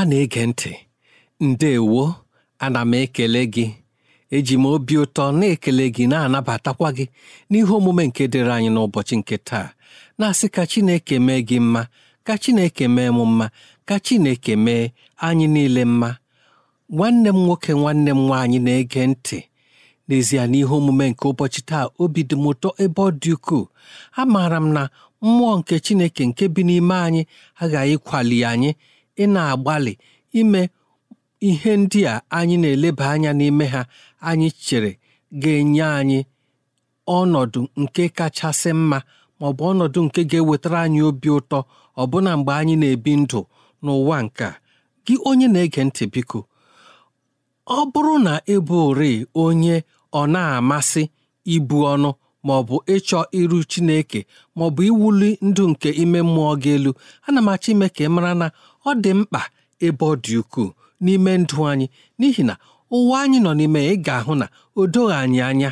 ọma na-ege ntị ndewo ana m ekele gị eji m obi ụtọ na-ekele gị na-anabatakwa gị n'ihe omume nke dịrị anyị n'ụbọchị nke taa na-asị ka Chineke mee gị mma ka Chineke mee m mma ka Chineke mee anyị niile mma nwanne m nwoke nwanne m nwaanyị na-ege ntị n'ezie n'ihe omume nke ụbọchị taa obi dị m ụtọ ebe ọ dị ukwuu amaara m na mmụọ nke Chineke nke bi n'ime anyị aghaghị kwali anyị ị na-agbalị ime ihe ndị a anyị na-eleba anya n'ime ha anyị chere ga-enye anyị ọnọdụ nke kachasị mma ma ọ bụ ọnọdụ nke ga-ewetara anyị obi ụtọ ọbụna mgbe anyị na-ebi ndụ n'ụwa nke a gị onye na-ege ntị biko ọ bụrụ na ịbụri onye ọ na-amasị ibu ọnụ ma ọ bụ ịchọ iru Chineke maọbụ bụ iwuli ndụ nke ime mmụọ gị elu ana m achọ ime ka ị mara na ọ dị mkpa ebe ọ dị ukwuu n'ime ndụ anyị n'ihi na ụwa anyị nọ n'ime ị ga-ahụ na o doghị anyị anya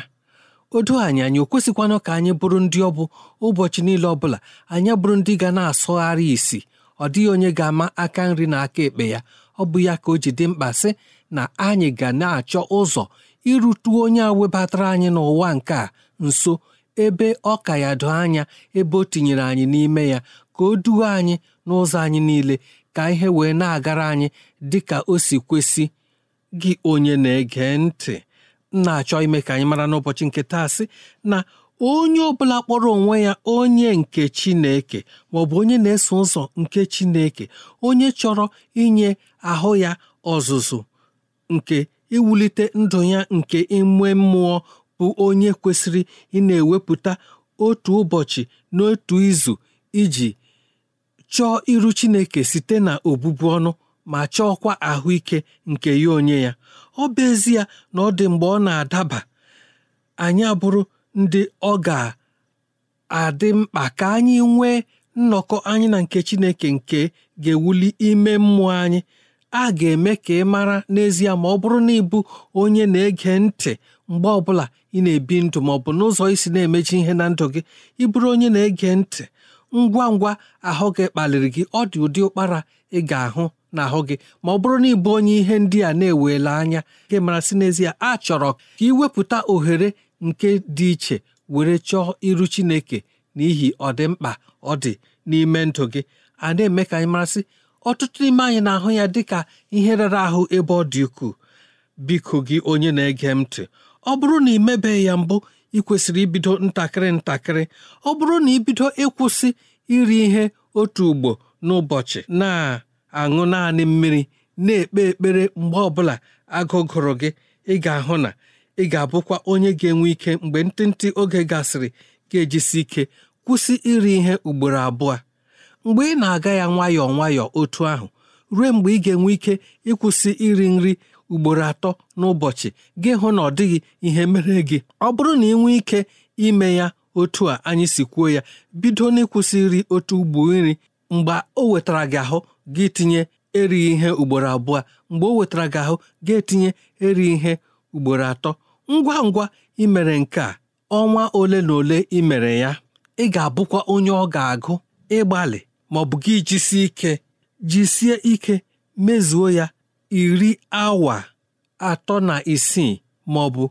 o doghị anyị anya o kwesịkwanụ ka anyị bụrụ ndị ọ bụ ụbọchị niile ọ bụla anyị bụrụ ndị ga na-asụgharị isi ọ dịghị onye ga-ama aka nri na aka ekpe ya ọ bụ ya ka o ji dị mkpa sị na anyị ga na-achọ ụzọ irutu onye a webatara anyị n'ụwa nke a nso ebe ọ ka ya doo anya ebe o tinyere anyị n'ime ya ka o duo anyị n'ụzọ anyị niile ka ihe wee na-agara anyị dị ka o si kwesị gị onye na-ege ntị na-achọ ime ka anyị mara n'ụbọchị nke taa sị na onye ọbụla kpọrọ onwe ya onye nke Chineke ma ọ bụ onye na-eso ụzọ nke Chineke onye chọrọ inye ahụ ya ọzụzụ nke iwulite ndụ ya nke ime mmụọ bụ onye kwesịrị ị ewepụta otu ụbọchị n'otu izu iji chọọ iru Chineke site na obubu ọnụ ma chọọkwa ahụike nke ya onye ya ọ bụ ezie na ọ dị mgbe ọ na-adaba anyị abụrụ ndị ọ ga-adị mkpa ka anyị nwee nnọkọ anyị na nke Chineke nke ga-ewuli ime mmụọ anyị a ga-eme ka ị mara n'ezie ma ọ bụrụ na ịbụ onye na-ege ntị mgbe ọbụla ị na-ebi ndụ ma ọ bụ n'ụzọ isi na-emechi ihe na ndụ gị ịbụrụ onye na-ege ntị ngwa ngwa ahụ gị kpaliri gị ọ dị ụdị ụkpara ị ga-ahụ n'ahụ gị ma ọ bụrụ na ịbụ onye ihe ndị a na-ewela anya gị mara n'ezie a chọrọ ka iwepụta ohere nke dị iche were chọọ iru Chineke n'ihi ọdịmkpa ọ dị n'ime ndụ gị a na-eme ka anyị marasị ọtụtụ n'ime anyị na-ahụ ya dịka ihe rara ahụ ebe ọ dị ukwuu biko gị onye na-ege m ntị ọ bụrụ na ị mebeghị ya mbụ ị kwesịrị ibido ntakịrị ntakịrị ọ bụrụ na ibido ịkwụsị iri ihe otu ugbo n'ụbọchị na-aṅụ naanị mmiri na-ekpe ekpere mgbe ọ bụla agụgụrụ gị ị ga-ahụ na ị ga-abụkwa onye ga-enwe ike mgbe ntịntị oge gasịrị ga-ejisi ike kwụsị iri ihe ugboro abụọ mgbe ị na-aga ya nwayọọ nwayọọ otu ahụ ruo mgbe ị ga-enwe ike ịkwụsị iri nri ugboro atọ n'ụbọchị gị hụ na ọ dịghị ihe mere gị ọ bụrụ na ị nwee ike ime ya otu a anyị si kwuo ya bido n'ịkwụsị nri otu ugbo nri mgbe o wetara gị ahụ gị tinye erighi ihe ugboro abụọ mgbe o wetara gị ahụ gị etinye erighị ihe ugboro atọ ngwa ngwa imere nke a ọnwa ole na ole imere ya ị ga-abụkwa onye ọ ga-agụ ịgbalị ma gị jisie ike jisie ike mezuo ya iri awa atọ na isii ma ọ bụ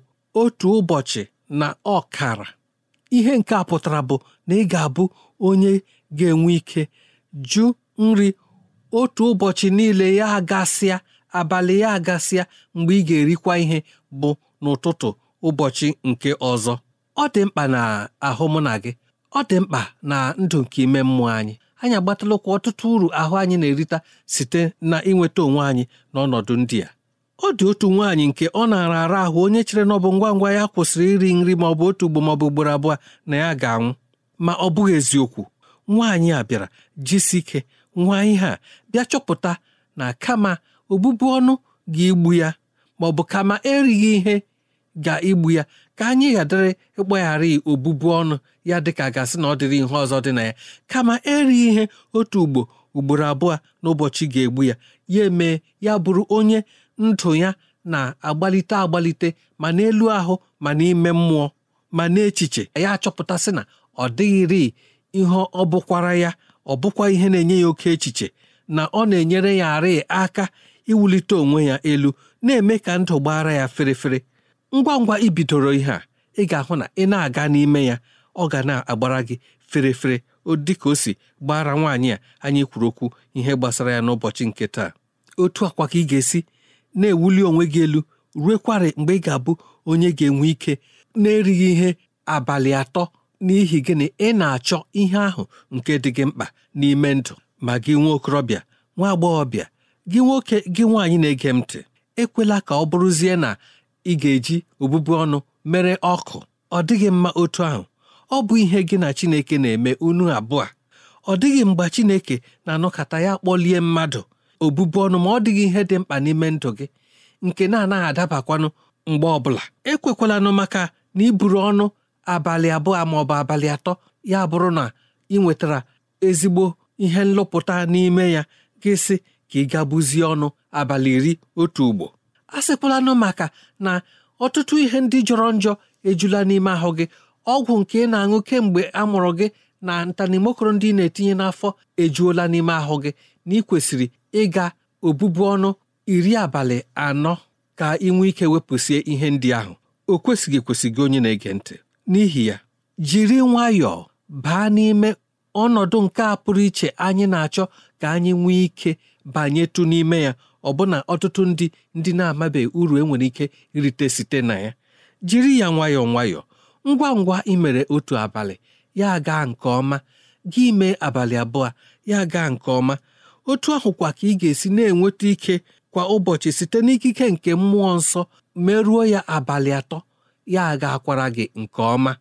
otu ụbọchị na ọkara ihe nke a pụtara bụ na ị ga-abụ onye ga-enwe ike jụ nri otu ụbọchị niile ya agasịa abalị ya agasịa mgbe ị ga-erikwa ihe bụ n'ụtụtụ ụbọchị nke ọzọ ọ dị mkpa na ahụ mụ na gị ọ dị mkpa na ndụ nke ime mmụọ anyị anyị agbatala ụkwụ ọtụtụ uru ahụ anyị na-erita site na inweta onwe anyị n'ọnọdụ ndị a ọ dị otu nwaanyị nke ọ na-ara ara ahụ onye chere na ọ bụ ngwa ngwa ya kwụsịrị iri nri ma ọ bụ otu ugbo maọbụ ugboro abụọ na ya ga-anwụ ma ọ bụghị eziokwu nwaanyị a bịara jisi ike ihe a bịa chọpụta na kama obubu ọnụ ga-egbu ya ma ọ bụ kama erighị ihe ga-egbu ya ka anyị ghadịrị ịgbagharị obubu ọnụ ya dịka gasị na ọ dịrị ihe ọzọ dị na ya kama erighị ihe otu ugbo ugboro abụọ n'ụbọchị ga-egbu ya ya emee ya bụrụ onye ndụ ya na-agbalite agbalite ma n'elu ahụ ma n'ime mmụọ ma n'echiche ya achọpụtasị na ọ dịghịrị ihe ọ bụkwara ya ọ bụkwa ihe na-enye ya oke echiche na ọ na-enyere ya arị aka iwulite onwe ya elu na-eme ka ndụ gbaara ya ferefere ngwa ngwa i bidoro ihe a ị ga-ahụ na ị na-aga n'ime ya ọ ga na-agbara gị ferefere ka o si gbara nwaanyị a anyị kwuru okwu ihe gbasara ya n'ụbọchị nke taa otu akwa ka ị ga-esi na-ewuli onwe gị elu ruekwara mgbe ị ga-abụ onye ga-enwe ike na-erighị ihe abalị atọ n'ihi gịnị ị na-achọ ihe ahụ nke dị gị mkpa n'ime ndụ ma gị nwa okorobịa nwa agbọghọbịa gị nwoke gị nwaanyị na-ege m ntị ekwela ka ọ bụrụzie na ị ga-eji obụbu ọnụ mere ọkụ ọ dịghị mma otu ahụ ọ bụ ihe gị na Chineke na-eme unu abụọ ọ dịghị mgbe Chineke na-anọkọta ya kpọlie mmadụ obụbụ ọnụ ma ọ dịghị ihe dị mkpa n'ime ndụ gị nke na-anaghị adabakwanụ mgbe ọbụla ekwekwalanụ maka na iburu ọnụ abalị abụọ ma ọ bụ abalị atọ ya bụrụ na ị nwetara ezigbo ihe nlụpụta n'ime ya gị sị ka ị gabuzie ọnụ abalị iri otu ugbo a nụ maka na ọtụtụ ihe ndị jọrọ njọ ejula n'ime ahụ gị ọgwụ nke ị na-aṅụ kemgbe a mụrụ gị na ntanimokoro ndị ị na-etinye n'afọ ejuola n'ime ahụ gị na ị kwesịrị ịga obubu ọnụ iri abalị anọ ka ị nwee ike wepụsie ihe ndị ahụ o kwesịghị gị onye na-ege ntị n'ihi ya jiri nwayọọ baa n'ime ọnọdụ nke a pụrụ iche anyị na-achọ ka anyị nwee ike banyetụ n'ime ya ọbụna ọtụtụ ndị ndị na-amabeghị uru enwere ike irite site na ya jiri ya nwayọọ nwayọọ ngwa ngwa imere otu abalị ya gaa nke ọma gị mee abalị abụọ ya gaa nke ọma otu kwa ka ị ga-esi na-enweta ike kwa ụbọchị site n'ikike nke mmụọ nsọ merụọ ya abalị atọ ya aga akwara gị nke ọma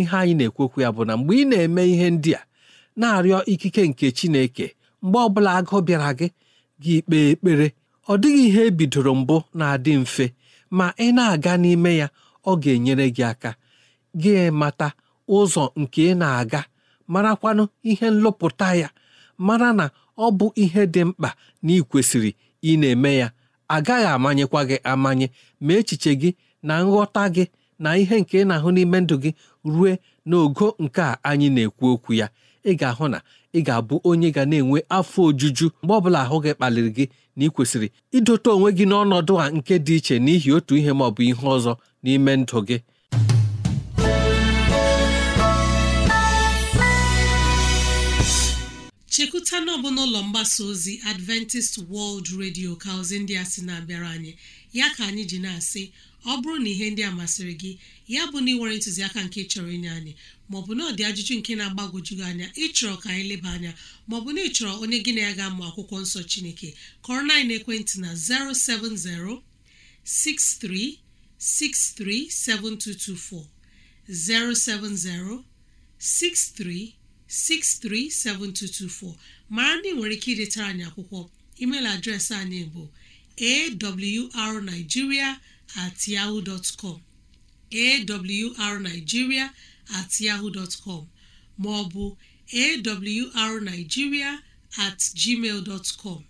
ihe anyị na-ekwekwu ya bụ na mgbe ị na-eme ihe ndị a na-arịọ ikike nke Chineke mgbe ọbụla agụ bịara gị gị kpee ekpere ọ dịghị ihe ebidoro mbụ na-adị mfe ma ị na-aga n'ime ya ọ ga-enyere gị aka gị mata ụzọ nke ị na-aga marakwanụ ihe nlọpụta ya mara na ọ bụ ihe dị mkpa na ị kwesịrị ị na-eme ya agaghị amanyekwa gị amanye ma echiche gị na nghọta gị na ihe nke ị na-ahụ n'ime ndụ gị rue n'ogo nke a anyị na-ekwu okwu ya ị ga-ahụ na ị ga-abụ onye ga na-enwe afọ ojuju mgbe ọbụla ahụ gị kpaliri gị na ị kwesịrị idote onwe gị n'ọnọdụ a nke dị iche n'ihi otu ihe ma ọ bụ ihe ọzọ n'ime ndụ gị chekwuta na n'ụlọ mgbasa ozi Adventist World Radio ka ndị a sị na-abịara anyị ya ka anyị ji na-asị ọ bụrụ na ihe ndị a masịrị gị ya bụ na ị nwere ntụziaka nke chọrọ inye anyị maọbụ na ọ dị ajụjụ nke na-agbagwoju gị anya ịchọrọ ka anyị leba anya maọbụ na ịchọrọ onye gị na ya ga-amụ akwụkwọ nsọ Chineke kọrọ na ekwentị na 07063637224 07063637224 mara na ị nwere ike idetara anyị akwụkwọ email adreesị anyị bụ awrnigeria at yahoo dot com awrnigeria at yahoo dot com ma awrnigeria at gmail dot com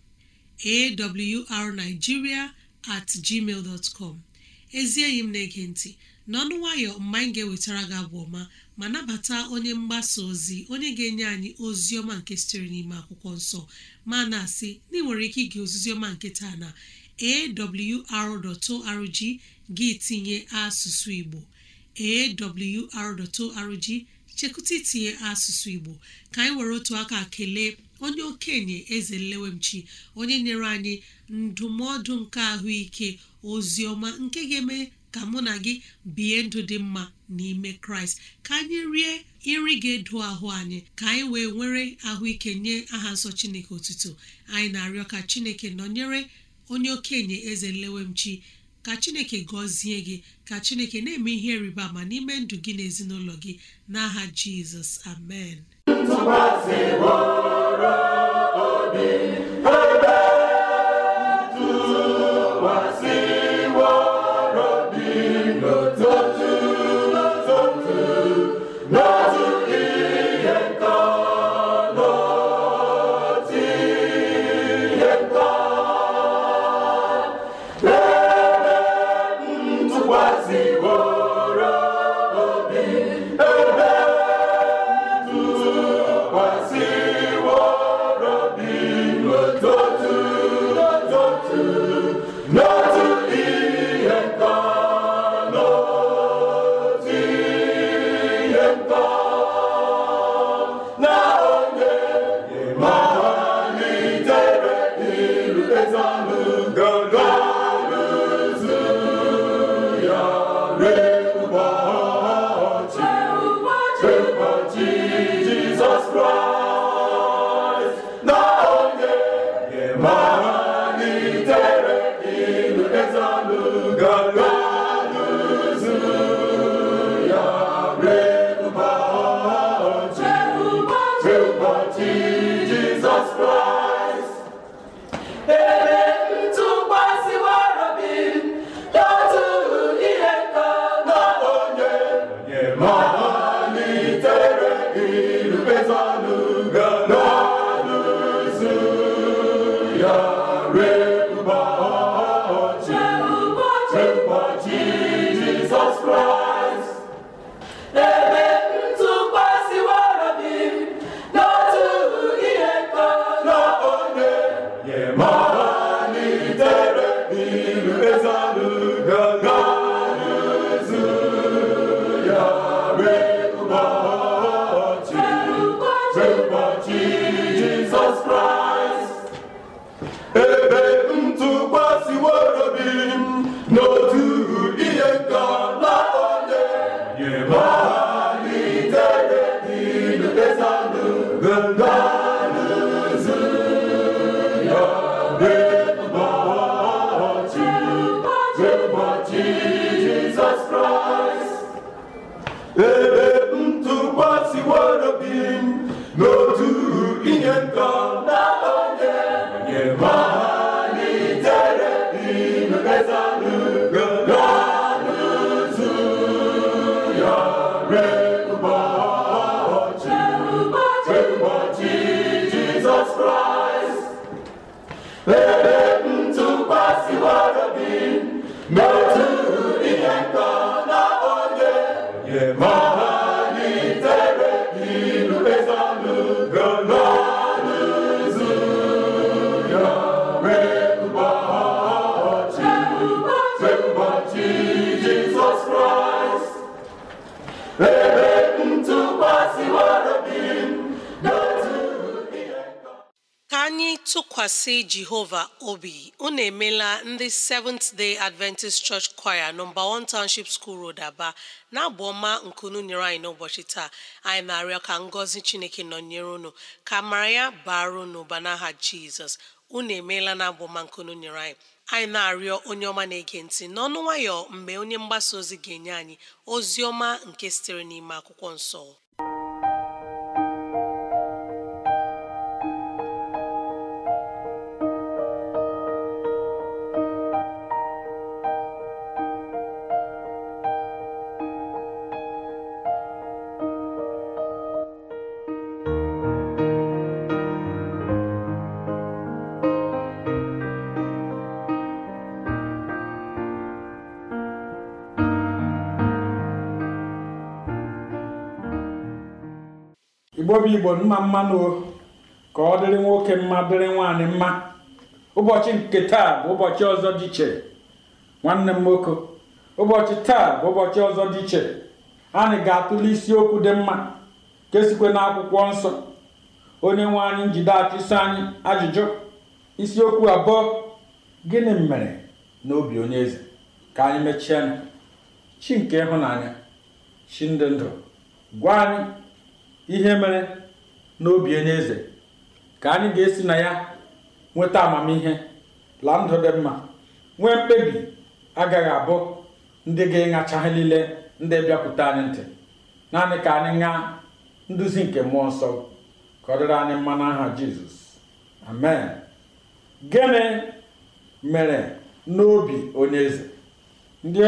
awrnigeria at gmail dot com ezi enyi m na-ege ntị n'ọnụ nwayọ mgbe anyị ga-ewetara gị abụ ọma ma nabata onye mgbasa ozi onye ga-enye anyị ozi ọma nke sitere n'ime akwụkwọ nsọ ma na-asị na ị nwere ike ige ozizi ọma nke taa na awr.org gị tinye asụsụ Igbo awr.org chekụta itinye asụsụ Igbo ka anyị were otu aka kelee onye okenye eze nlewemchi onye nyere anyị ndụmọdụ nke ahụike ozi ọma nke ga-eme ka mụ na gị bie ndụ dị mma n'ime kraịst ka anyị rie nri ga-edo ahụ anyị ka anyị wee nwere ahụike nye aha nsọ chineke otuto anyị na-arịọ ka chineke nọnyere onye okenye eze nlewemchi ka chineke gọzie gị ka chineke na-eme ihe rịba ma n'ime ndụ gị na ezinụlọ gị n'aha jizọs amen ụbọchị Amen. ntụkwasị jehova obi unu emela ndị seventh day adventist church choir nọmba 1 township school road aba na-abụ ọma nkunu nyere anyị n'ụbọchị taa anyị na-arịọ ka ngọzi chineke nọnyere unu ka mara ya baara unu ụba n'aha jizọs unu emeela na abụ ọma nkunu nyere anyị anyị na-arịọ onye ọma na-ege ntị n'ọnụ nwayọ mgbe onye mgbasa ozi ga-enye anyị ozi ọma nke sitere n'ime akwụkwọ nsọ nwewe igbo mma mmanụ ka ọ dịrị nwoke mma dịrị nwaanyị mma ụbọchị nke taa bụ ụbọchị ọzọ dị iche nwanne m nwoke ụbọchị taa bụ ụbọchị ọzọ dị iche anyị ga-atụle isiokwu dị mma kesikwe na akwụkwọ nsọ onye nwe anyị njide achụso anyị ajụjụ isiokwu abụọ gịnị mere n'obi onye eze ka anyị mechie chi nke ịhụnanya chi ndị ndụ gwa anyị ihe mere n'obi onye eze ka anyị ga-esi na ya nweta amamihe la ndụ dị mma nwee mkpebi agaghị abụ ndị ga-ịṅacha ha niile ndị bịakwute anyị ntị naanị ka anyị ṅaa nduzi nke mmụọ nsọ ka ọ dịrị anyị mma n'aha jizọs amen gịnị mere n'obi onye eze ndị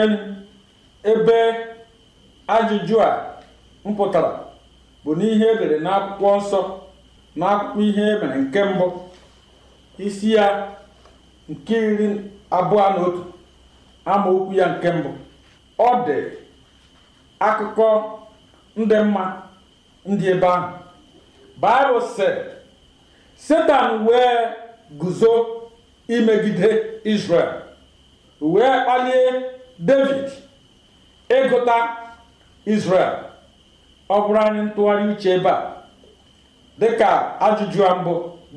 ebe ajụjụ a mpụtara bụ n'ihe edere n'akwụkwọ nsọ n'akwụkwọ ihe e mere nke mbụ isi ya nke iri abụọ na otu amaokwu ya nke mbụ ọ dị akụkọ ndị mma ndị ebe ahụ baịbụl sị satan wee guzo imegide israel wee kpalie david ịgụta israel ọ bụrụ anyị ntụgharị uche ebe a dịka ajụjụ a mbụ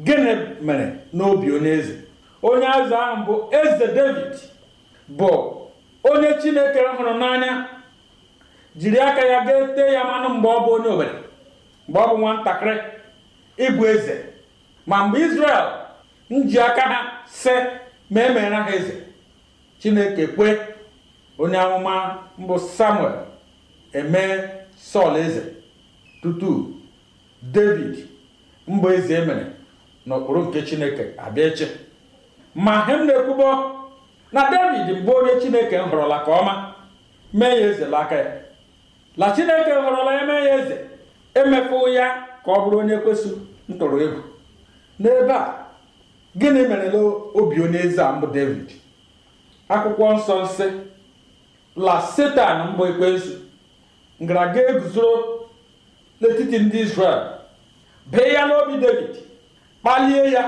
gịnị mere n'obi onye eze onye azụ ahụ bụ eze david bụ onye chineke hụrụ n'anya jiri aka ya ga tee ya mmanụ mgbe ọ bụ onye obere mgbe ọ bụ nwatakịrị ịbụ eze ma mgbe israel nji aka ha si ma emere ha eze chineke kwe onye amụma mbụ samuel emee sọl eze tutu david mba eze emere n'okpuru nke chineke abịa ma hem na-ekwubo na david mgbe onye chineke họrọla ka ọma mee ya eze n'aka ya la chineke họrọla ya mee ya eze emefu ya ka ọ bụrụ onye kwesị ntụrụ ego n'ebe a gịnị na obi onye eze a mbụ david akwụkwọ nsọ nsị la setan mbụ ekwensu ngaraga eguzoro n'etiti ndị Izrel bee ya n'obi David kpalie ya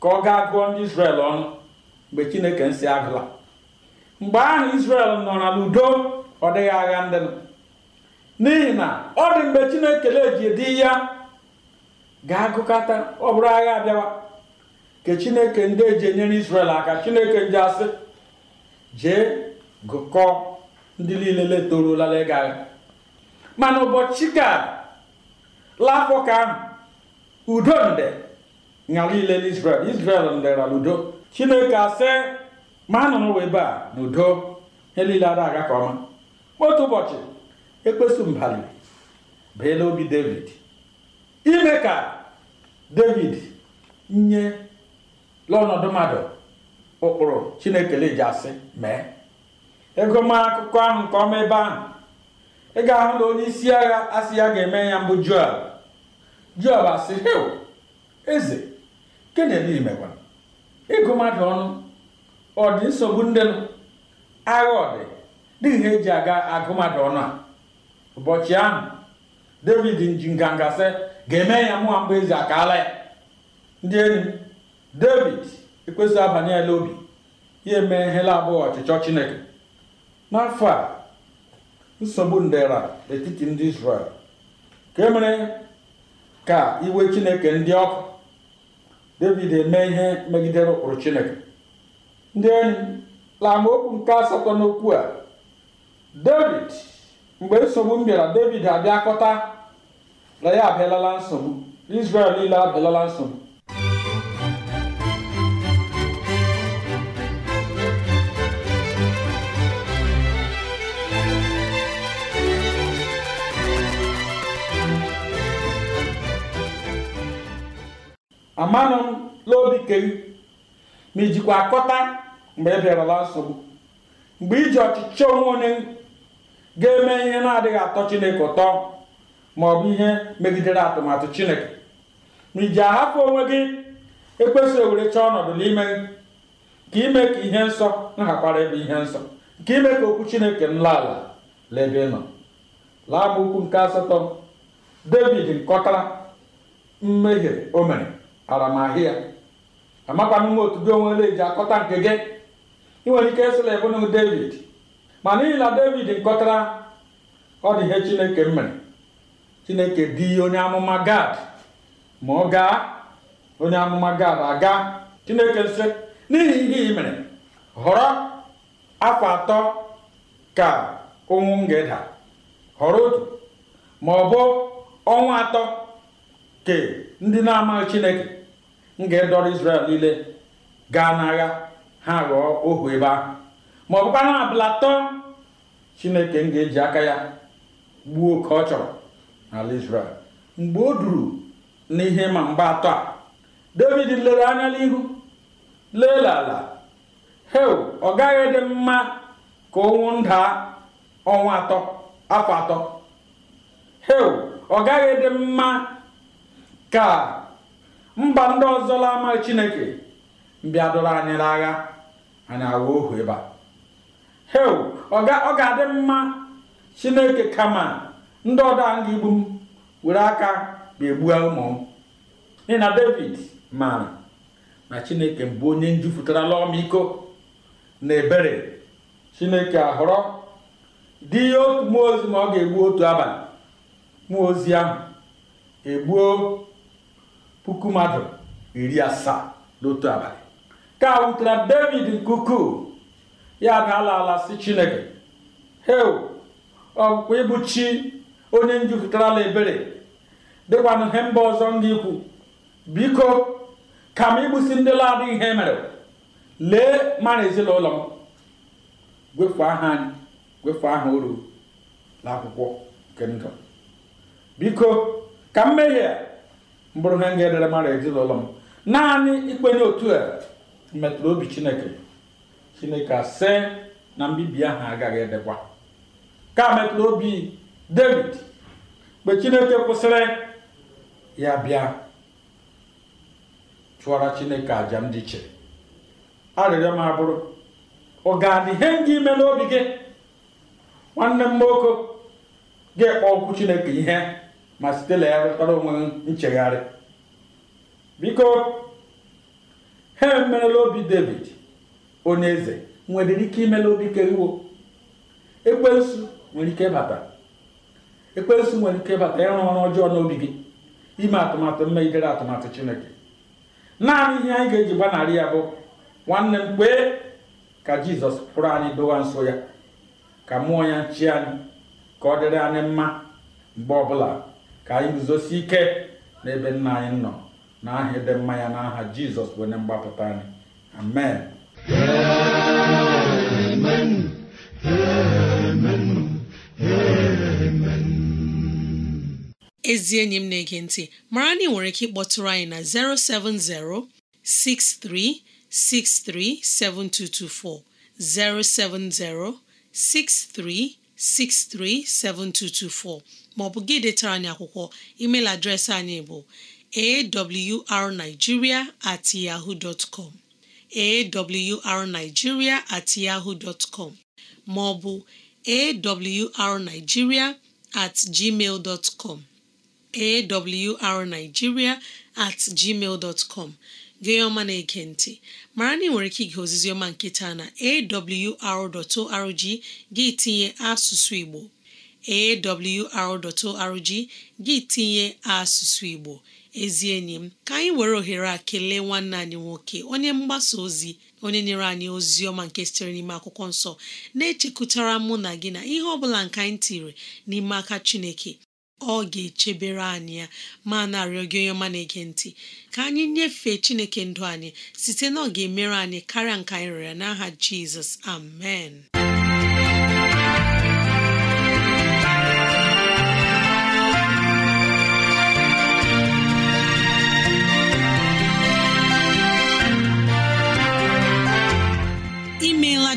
ka ọ gaa gụọ ndị Izrel ọnụ mgbe Chineke nsị agụla mgbe ahụ isrel nọ na n'udo ọ dịghị agha ndị n'ihi na ọ dị mgbe Chineke neji dị ya ga-agụkọta ọ bụrụ agha abịawa ka Chineke ndị eji enyere isrel aka Chineke ndị asị jee gụkọọ ndị niile letorola agha mana ụbọchị ka l'afọ ka udo nde ṅara ile n'israel isrel ndera udo chineke asị ma a ebe a na udo ihe niile ada aga ka ọma otu ụbọchị ekpesu mbali bee n'obi david ime ka david nye lọnọdụ mmadụ ụkpụrụ chineke leji asị mee ego ma akụkọ ahụ nke ọma ebe ahụ ị ga-ahụ na onye isi agha asị ya ga-eme ya mbụ Joab Joab asị hil eze kenedimekwa ịgụ mmadụ ọnụ ọ dị nsogbu ndị nụ agha ọdị, dị dịghị ihe eji aga agụ mmadụ ọnụ a ụbọchị ahụ David nji nganga sị ga-eme ya mụwa mbụ eze akaala ya ndị enyi David ekwesịghị abanye ya n'obi ya eme ihela abụghị ọchịchọ Chineke n'afọ a nsogbu ndera etiti ndị Israel ka e mere ka iwe Chineke ndị ọkụ David eme ihe megidere ụkpụrụ Chineke ndị enyi laamaokwu nke asatọ n'okwu a David mgbe nsogbu m bịara David abịakọta na ya abịalala nsogbu Israel niile abịalala nsogbu amanụ m n'obi kee ma ijikwa akọta mgbe ị e bịarala nsogbu mgbe iji ọchịchọ onwe onye ga-eme ihe na-adịghị atọ chineke ụtọ ma ọ bụ ihe megidere atụmatụ chineke ma iji ahapụ onwe gị ekwesịghị ewere chọọ ọnọdụ n'ime ka ime ka ihe nsọ nhakwara ebe ihe nsọ nke ime ka okwu chineke nla ala laebe nọ laa m okwu nke asatọ david nkọtara mmehie o mere aramahịa amakwa m otu gị onwe ole eji akọta nke gị ị nwere ike ebe ebunu david ma n'ihi na david nkọtara ọ dị ihe chineke mere chineke dị onye amụma gad ma ọ gaa onye amụma gad aga chineke nsị n'ihi ihe ị mere họrọ afọ atọ ka ụnwụ m ga-eda họrọ otu ma ọ bụ ọnwa atọ ke ndị na-amaghị chineke m ga-edọrọ isrel niile gaa n'agha ha ghọọ ohu ebe ahụ ma ọ bụkwa abụlatọ chineke m ga-eji aka ya gbuo ka ọ chọrọ n'ala isrel mgbe o duru n'ihe ma mgbe atọ a David lere anya n'ihu leela ala ọ gaghị dị mma ka ọnwụ ndaa ọnwa atọ afọ atọ ọ gaghị dị mma ka mba ndị ọzọ la ama chineke mbịa dụrụ anyị n'agha anyị agha ohu ebe a ọ ga-adị mma chineke kama ndị ọdọ anyị igbu m were aka ma egbua ụmụ m n'ihi na david maara na chineke mbụ onye njupụtarala ọmịiko na ebere chineke ahọrọ dị ihe otu mmụọ ozi ma ọ ga-egbu otu abalị mmụọ ozi ahụ egbuo puku mmadụ iri asaa n'otu abalị ka a wutere david nke ya daala ala si chineke heu ọkpụkpọ ịbụ chi onye njupụtarala ebere dịkwanụ ihe mba ọzọ ndị ikwu biko ka m igbusi ndị ladị ihe e mere lee mara ezinụlọ m gwefu aha anyị gwefu aha oru n'akwụkwọ nke ndụ biko ka mmehie mbụrụ ihe nga edere mara ezinụlọ m naanị ikpenye otu a metụrụ obi chineke chineke asị na mbibi ahụ agaghị edekwa ka metụrụ obi david mgbe chineke kwụsịrị ya bịa chụọra chineke àjà m dị iche arịrịọ m abụrụ ọ ga-adị ihe ndị ime n'obi gị nwanne m nwoke ga-ekpe okwu chineke ihe ma site legharịtara onwe nchegharị biko ha emerela obi david onye eze nwere ike imela obi ekwensu nwere ike ịbata ekwensu nwere ike ịbata ịrụ ọrụ ọjọọ n'obi gị ime atụmatụ mmegidere atụmatụ chineke naanị ihe anyị ga-eji gbanarị ya bụ nwanne m kpee ka jizọs pụrụ anyị dowa nso ya ka mụọ ya nchi anyị ka ọ dịrị anyị mma mgbe ọbụla ka anyị guzosi ike n'ebe nna anyị nọ n'aha ịdị mma ya n'aha jizọs bụ onye mgbapụta anyị amen amen amen ezi enyi m na-ege ntị mara na ị nwere ike ịkpọtụrụ anyị na 07063637224 07063637224 maọbụ gị detara anyị akwụkwọ email adreesị anyị bụ awrnigeria at yahoo dot com awrnigeria at yahoo dot com maọbụ awrnigeria at gmail dot com at gmail dot com gị na-ege mara na ị nwere ike ige ozizi ọma nketa na awr.org gị tinye asụsụ Igbo awr.org gị tinye asụsụ Igbo ezi enyi m ka anyị were ohere a kelee nwanne anyị nwoke onye mgbasa ozi onye nyere anyị ozi ọma nke sitere n'ime akwụkwọ nsọ na-echekwutara mụ na gị na ihe ọ bụla nke anyị tiri n'ime aka Chineke ọ ga-echebere anyị ya ma narịọ gị onye ọma na-ege ntị ka anyị nyefee Chineke ndụ anyị site na ọ ga-emere anyị karịa nke anyị ya. n'aha Jizọs amen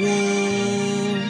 woo!